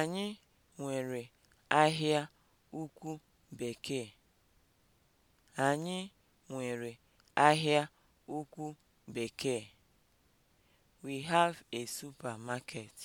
Anyị nwere ahịa ukwu bekee. Anyị nwere We have a supermarket.